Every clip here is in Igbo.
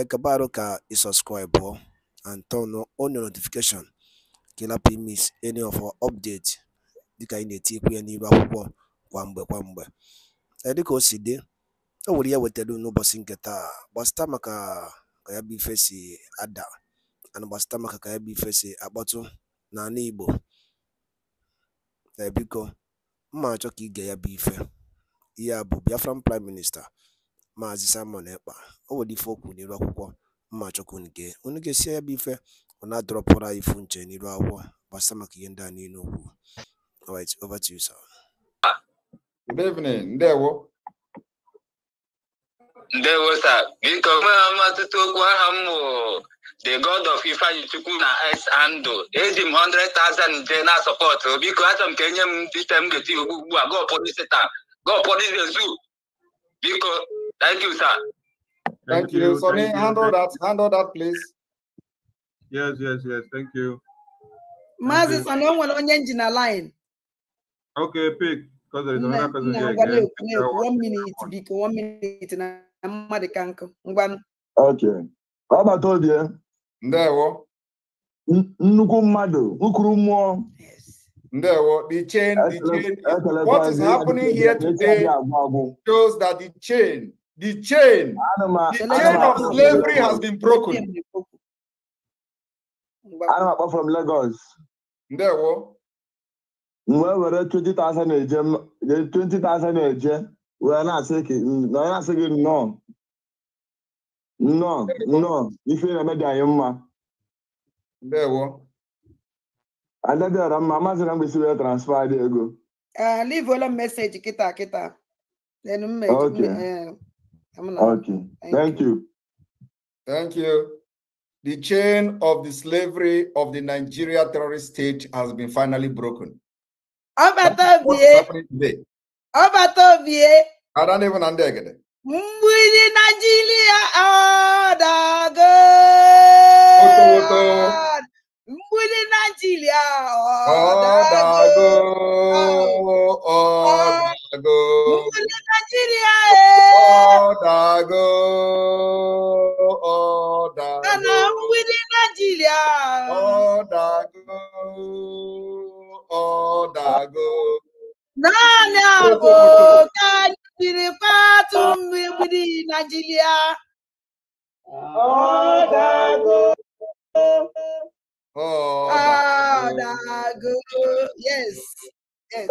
acabar ka i subscribe and turn on your notification ka ị any of our update dịka anyị na-etikwu ya n'iru akwụkwọ kwa mgbe kwa mgbe dịka o si dị o nwere ya e wetara n'ụbọchị nke taa gbasịta maka ka ya bụ ife si ada ana gbasịta maka ka ya bụ ife si akpọtụ n'ala igbo ebiko mma achọ ka ige ya bụ ife ihe a bụ biafran prime minista Maazị Simon Ekpa o nwere ife okwu kwuru n'iru akwụkwọ mmachukwu nke onye ga-esi ya bụ ife ọ na-adọrọpụrụ anyị ifu nche n'iru akwụkwọ gbasa maka ihe ndị a niile okwu alright over to you sir ndewo ndewo sir biko nwere mmatụta okwu aha m the god of ifeanyi chukwu na s andụ eji m 100,000 nje na sọpọtụ biko achọ m ka enye m dịte m ga-eti ugbu ugbu a gọpụrụ isi taa gọpụrụ ezu. biko Thank you, sir. Thank, thank you. you. handle that. Handle that, please. Yes, yes, yes. Thank you. Mazi Sonny nwere onye nji na line. Okay, pick. Because there is another person here. Again. One minute, biko. One minute na mmadụ ka nkụ. Ngwanụ. Okay. Ọgbata obi ya. Ndewo. Nnukwu mmadụ, nkuru mmụọ. Ndewo, the chain, the chain. What is happening here today shows that the chain The chain, the chain of slavery has been broken. Ana m from Lagos. Ndewo. M wee were 20,000 eje 20,000 eje wee na-asị gị na-asị gị nnọọ nnọọ nnọọ ife na-eme dị anyị mma. Ndewo. Adadịọra mma amaghịzi na mgbesi wee transfer dị ego. Ah, Livuola m meseji kịta kịta. Then okay. Eh, Okay. Thank, Thank you. you. Thank you. The chain of the slavery of the Nigeria terrorist state has been finally broken. Obatovie. I don't even understand. Mwili Nigeria odago. Mwili Nigeria odago. Odago. Ah. Mwili Nigeria Chicago ọ dago. Ọ dago ọ dago. Naanị abụ ka anyị jiri patụ mmiri Nigeria. Ọ dago. Ọ dago. Yes. Yes.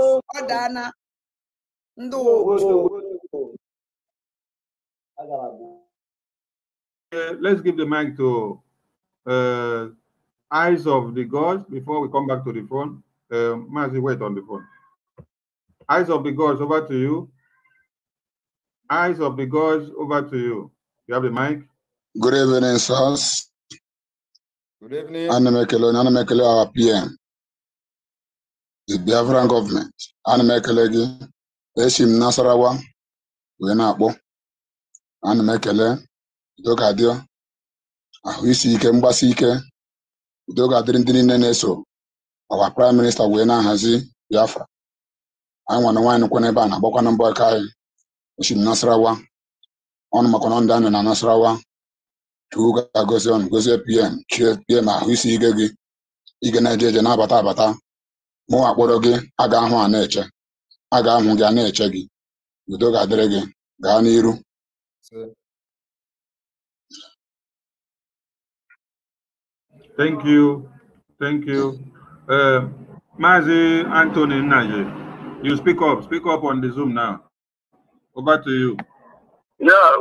Uh, let's give the mic to uh, Eyes of the Gods before we come back to the phone. Uh, Mazi, wait on the phone. Eyes of the Gods, over to you. Eyes of the Gods, over to you. You have the mic. Good evening, sirs. Good evening. Anna Anamekele, our PM. The Biafran government. Anamekele, Eshim Nasarawa, Wenakbo. ana m ekele udogadị ahụ isi ike mgbasi ike udo ga-adịrị ndị niile na-eso ọwa praịm minista wee na-ahazi Biafra anyị nwana nwaanyị nkwe n'ebe a na-agbakwana mbọ aka anyị osimiri Nasarawa ọnụ makwana ndị anyị na Nasarawa chukwu ga-agozi ọnụ gozie pm chie pm ahụ isi ike gị ige na-eje eje na-abata abata mụwa akpọrọ gị a ga-ahụ a na-eche a ga-ahụ gị a na-eche gị udo ga-adịrị gị gaa n'iru Thank you. Thank you. Uh, Mazi Anthony Naje, you speak up. Speak up on the Zoom now. Over to you. Yeah.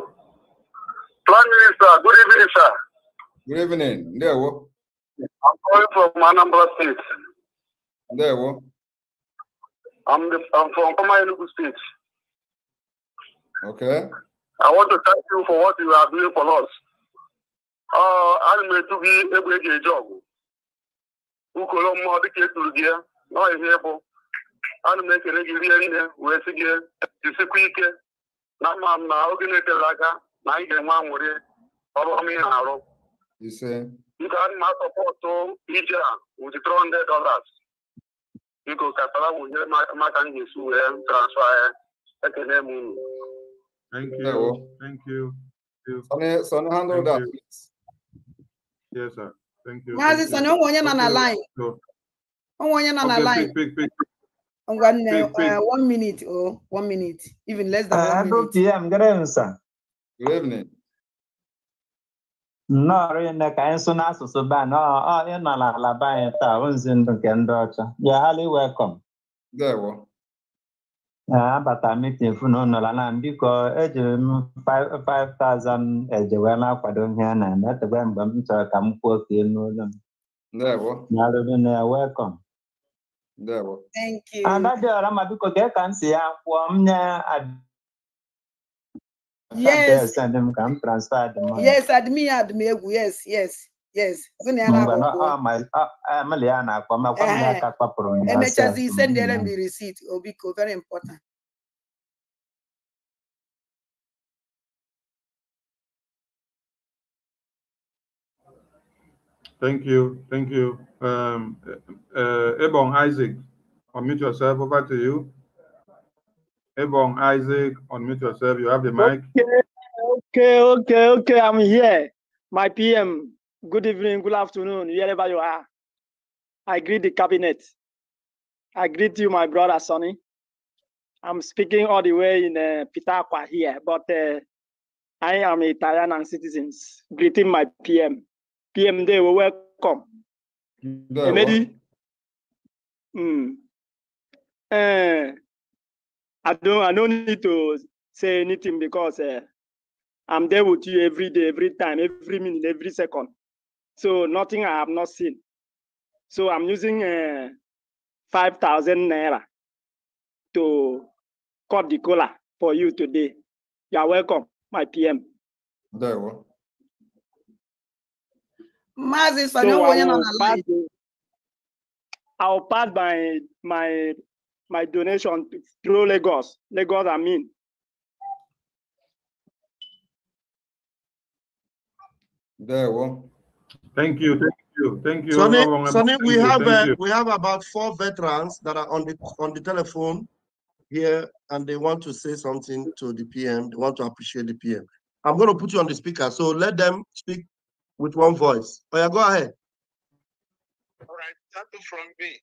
Prime Minister, good evening, sir. Good evening. There, what? I'm calling from Anambra State. There, what? I'm, the, I'm from Koma State. Okay. I want to thank you for what you are doing for us. ana m etu gị egbe eji eji ọgụ ukolo mmụọ dịka eturu gị ya nọ ihe bụ ana m ekere gị rie nne wee sị gị jisikwa ike na mma m na oge na-etere aka na anyị ga-enwe anwụrị ọrụ ọma ị na-arụ nke ana m asọpọtụ ije a with 300 dọlas biko katara wụnyere maka m ga-esi wee transfa ya ekele m unu Thank you. Hello. Thank you. Sonny, Yes, sir. Thank you. Sonny, onwe onye na line. Onwe onye nọ na line. Eh, one minute, oh, one minute, even less than uh, one minute. p.m. Good evening, Good evening. ka anyị sụ n'asụsụ ban ọ ịnọ n'ala be anyị taa nzi ndụ nke ndị ọcha. are highly welcome. abata ah, mitin funu nọla na biko ejiri m 5000 eje wee na-akwado ihe a na-eme etebe mgbe m chọrọ ka m kwuo ka n'ụlọ m welcome ada dị ọra ma biko gee ka m si ya kwụọ m nye yes admin admin egwu yes yes yes na emechazi ise ndị ere mbi risit obiko very important Thank you, thank you. Um, uh, eh, Ebon Isaac, unmute yourself. Over to you. Ebon Isaac, unmute yourself. You have the mic. Okay, okay, okay, okay. I'm here. My PM, Good evening, good afternoon, wherever you are. I greet the cabinet. I greet you, my brother Sonny. I'm speaking all the way in uh, Pitaqua here, but uh, I am Italian and citizens. Greeting my PM. PM, they will welcome. Emedi. Mm. Uh, I don't. I don't need to say anything because uh, I'm there with you every day, every time, every minute, every second. So nothing I have not seen. So I'm using uh, 5,000 Naira to cut the cola for you today. You are welcome, my PM. There you are. so I will, pass, I will pass my my my donation through Lagos. Lagos, I mean. There you are. Thank you, thank you, thank you. Sonny, Sonny we uh, you, have uh, we have about four veterans that are on the on the telephone here, and they want to say something to the PM. They want to appreciate the PM. I'm going to put you on the speaker, so let them speak with one voice. Oh yeah, go ahead. All right, starting from me,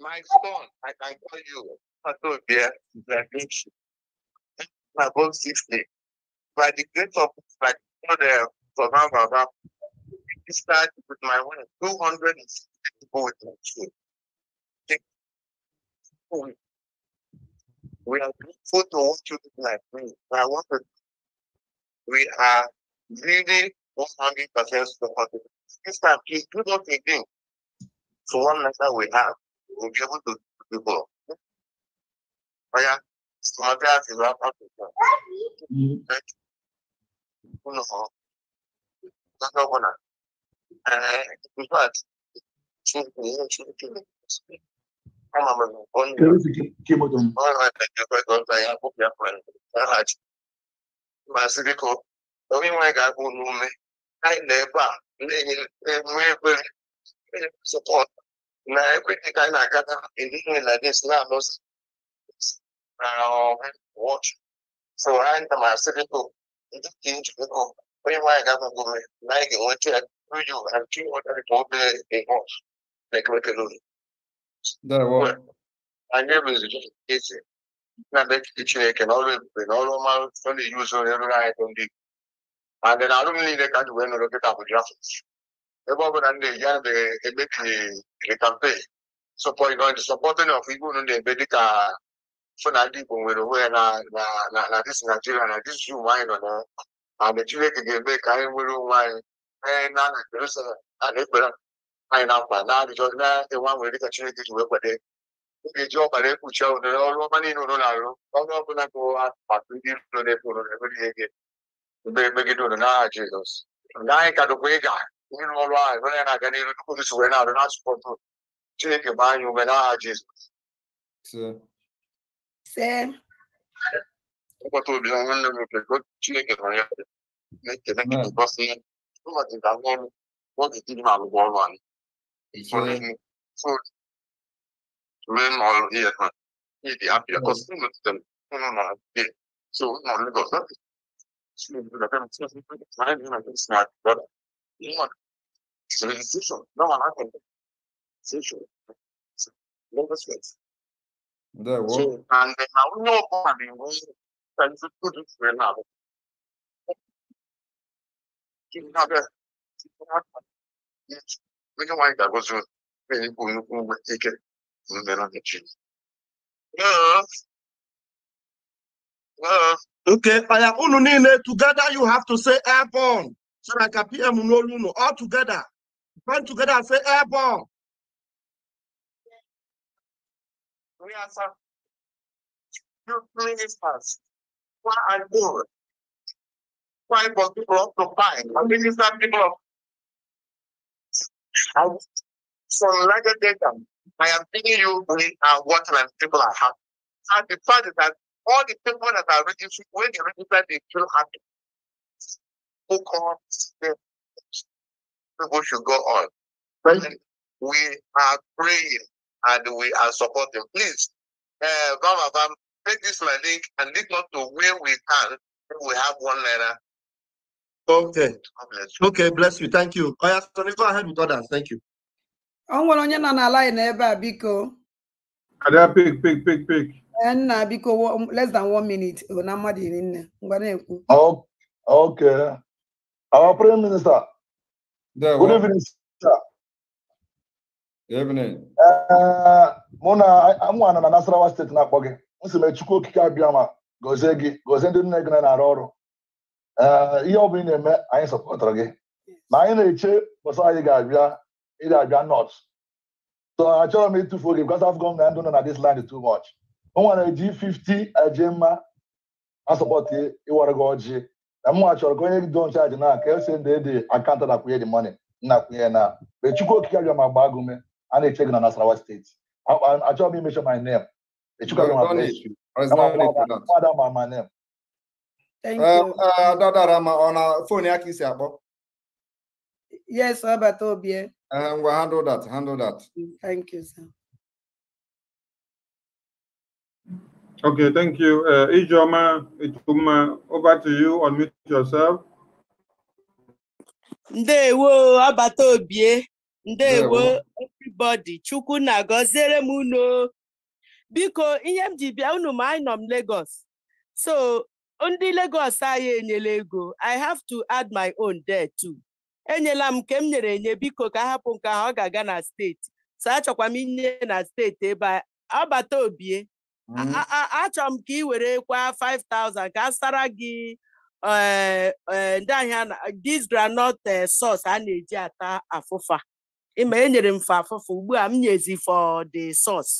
my son, I can call you Patobia Zavichi. I'm about 60. By the grace of my God, Baba, uh, this with my wife. 260 boys next year. We are grateful to all children like me. I want to, we are really 100% supportive. This time, please do not again. So one letter we have, we'll be able to do Oh yeah, so my dad is up Africa. Thank you. No, that's maazị biko onye nwe ga-abụ n'ume anyị na ebe a na-enwe ekwere sọpọt na ekwe ka anyị na-agada endihe na dis na-alụsị na wọch so anyị na maazị biko ndị ka njikọ onye nwe anyị ga na anyị ga-enweta ya Rüdiger, han tog den bombe en hårs. Den kan man ikke lide. Der Na bet kiche ke no le pe no lo mal son di uso ne lo ngai ton di. na then alum ni de kan we no lo ke ta bu ndị E bo ban ya de e be ki to support no fi gu no de be di ka funa di bu we na na na na you na. And the ka na na Jerusalem na-ekpere anyị na mkpa na-arịjọ na-enwe nwere dịka Chineke ji wee kwade ị ga-eji ọbara ekpuchi ụnere ọrụ ọma niile na-arụ ọrụ ọbụla bụ maka ndị iro na-efe ụnụ na-emere ihe gị mgbe megide ụnụ n'aha Jizọs na anyị ka dụkwa ịga ịrụ ọrụ ahụ nwere ya na-aga n'iru tupu Kristo wee na-arụ na-asụpọtụ Chineke gbaa anyị ume n'aha Jizọs ụbọchị na ya 不过警察官我只知马路过弯，所以所以马路也很一点比较高，是不是？不能马路的，就马路高速，是不是？但是就是哪里哪里是哪里的，因为只能洗手，那往哪里洗手？那个水。对我。就俺在马路过弯的，我但是不知谁拿的。another onye nwanyị ga-agọzi onye Okay, together you have to say airborne so na ka PM n'olu unu all together band together and say airborne. We Ministers, one and more find for people to find. I minister people I from larger data. I am giving you we are what and people are happy. And the fact is that all the people that are registered, when they register, they feel happy. Focus them. People should go on. We are praying and we are supporting. Please, uh, Bam, Bam, take this my link and link not to where we can. We have one letter Okay. Okay, bless you. Thank you. Oh, yes, go ahead with others. Thank you. O nwere onye nọ na line ebe a biko. Ada pik pik pik pik. E, nna biko less than one minute na mmadụ iri nne ngwa na-ekwu. Okay. Our Prime Minister. There, Good evening, sir. Evening. Eh, mụ na nwa na Nasarawa steeti na-akpọ gị. M sị m Okike abịa ma gozie gị gozie ndị nne gị na-arụ ọrụ. ihe ọ bụla ị na-eme anyị sọpọtara gị na anyị na-eche bọsa anyị ga-abịa ịdị abịa nọt so achọrọ m ịtụfu oge because Afcon na ndụ nọ na dis land too much m nwere ji 50 aje mma asọpọtụ ịwara gị ọjị na m nwa chọrọ ka onye gị don chaji na ka esi ndị dị akant nakwunye dị mọni nnakwunye na mgbe Chukwu Okike abịa ma gbaa gụme a na-eche gị na Nasarawa steeti achọrọ m imechọ my name Chukwu abịa ma my name dadara ma ọ na fon ya ka isi akpọ yes ọbata obie ngwa handle that handle that thank you sir Okay, thank you. Uh, Ijoma, over to you. Unmute yourself. Ndewo, abata obie. Ndewo, everybody. Chukwu na-agọziere m unu. Biko, ihe m ji bịa unu ma anyị nọ m Lagos. So, ndị legos anyị enyela ego I have to add my own there too enyela m nke m nyere enye biko ka hapụ nke ahụ ọ ga-aga na steeti so achọkwa m inye na steeti ebe ọ bata obie mm. achọrọ m ka ị were kwa 5000 ka sara gị eh, eh, ndị ahịa dis groundnut eh, sos a na-eji ata afụfa ịma enyere m fa afụfa ugbu a m nyezi for the sauce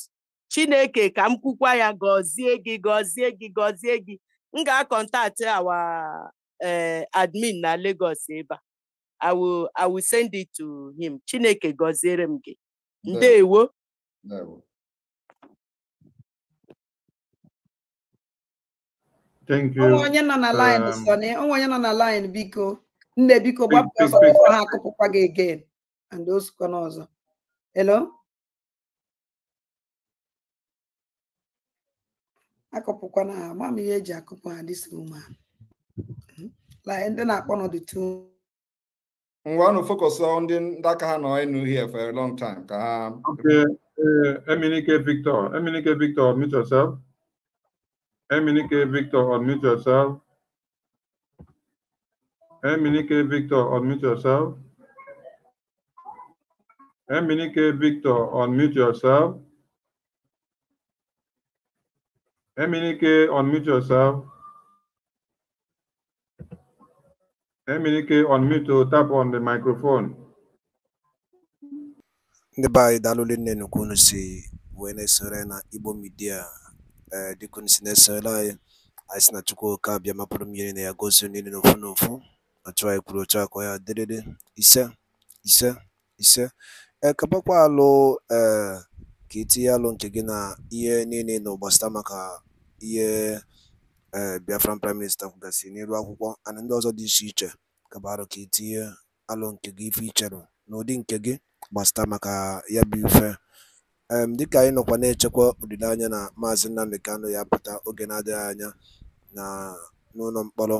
chineke ka m kwukwa ya gọzie gị gọzie gị gọzie gị m ga-akọntaktị our eh, admin na Lagos ebe a I will send it to him Chineke gọziere m gị ndewo onye nọ na line um, Sọnị onwe onye nọ na line biko nne biko gbapụ ha akụpụkwa gị again and osikwa n'ọzọ hello akọpụkwa na ma m ihe eji akụpụ ha dịsi ụmụ ha ndị na-akpọ nọdụ tu ngwa nụ focus ndị aka ha nọ enu here for a long time ka ha okay uh, Eminike Victor Eminike Victor unmute yourself Eminike Victor unmute yourself Eminike Victor unmute yourself Eminike Victor unmute yourself Eminike, unmute yourself. Eminike, unmute to tap on the microphone. Ndị be anyị daalụ nne nnukwu unu si wee na-esore na Igbo Media eh, dịka unu si na-esore anyị anyị si na Chukwu oke abịa mapụrụ mmiri na ya gozie niile n'ofu n'ofu ọchụ anyị kwuru ochu akọ ya dịrịrị ise ise ise ee eh, alụ ee eh, ka i alụ nke gị na ihe niile na nọ maka ihe ee Biafran Prime Minister kwugasịrị n'elu akwụkwọ ana ndị ọzọ dị iche iche kaba arụ ka i tinye nke gị ife icherụ n'ụdị nke gị gbasara maka ya bụ ife dịka anyị nọkwa na-echekwa olileanya na maazị Nnamdi Kanu ya pụta oge na-adịghị anya na n'ụlọ mkpọrọ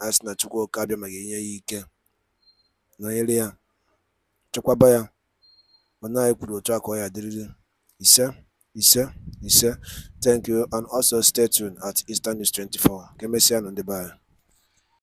anyị sị na Chukwuka abịa ma ga-enye ya ike nọnyere ya chekwaba ya mana anyị kwuru otu a ka ọ ya dịrịrị Sir, Ise, sir. Thank you. And also stay tuned at Eastern News 24. on the bar.